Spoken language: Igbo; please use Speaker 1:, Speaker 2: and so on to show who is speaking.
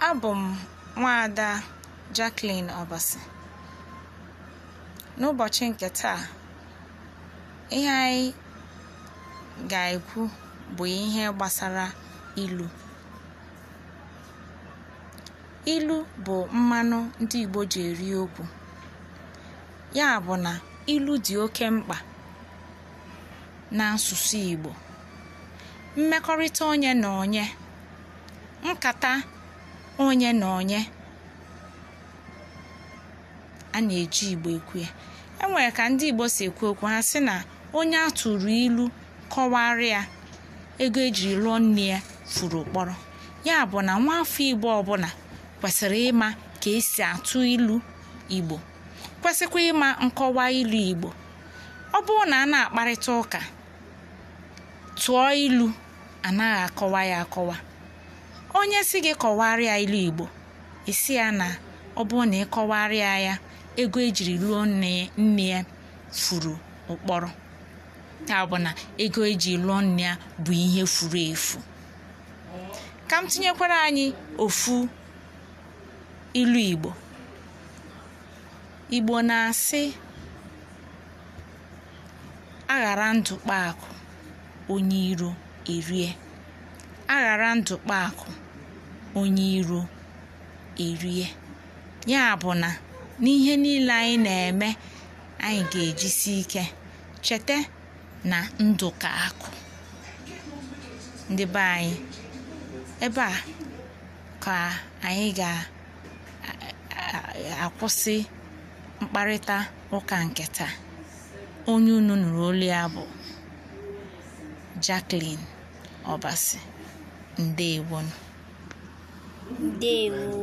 Speaker 1: abụ m nwaada Jacqueline Obasi n'ụbọchị nke taa ihe anyị ga-ekwu bụ ihe gbasara ilu ilu bụ mmanụ ndị Igbo ji eri okwu ya bụ na ilu dị oke mkpa na nsusu Igbo mmekọrịta onye na onye nkata onye na onye a na-eji igbo ekwu ya enwere ka ndị igbo si ekwu okwu ha sị na onye a tụrụ ilu kọwarị ya ego ejiri lụọ nne ya furu ụkpọrọ ya bụ na nwa nwaafọ igbo ọbụla kwesịrị ịma ka esi atụ ilu igbo kwesịkwa ịma nkọwa ilu igbo ọ bụrụ na a na-akparịta ụka tụọ ilu anaghị akọwa ya akọwa onye si gị kọwarịa ilu igbo isi ya na ọ bụrụ na ịkọwarịa ya ego ejiri lụọ nne ya furu ụkpọrọ ya bụ na ego eji lụọ nne ya bụ ihe furu efu ka m tinyekwara anyị ofu ilu igbo igbo na-asị aghara ndụ kpaakụ onye iro erie aghara ndụ kpaakụ onye iro erie ya bụ na n'ihe niile anyị na-eme anyị ga-ejisi ike cheta na ndụ ka akụ ndị anyị ebe a ka anyị ga-akwụsị mkparịta ụka nke taa onye unu nụrụ olu ya bụ Jacqueline Obasi ndewonu Deus.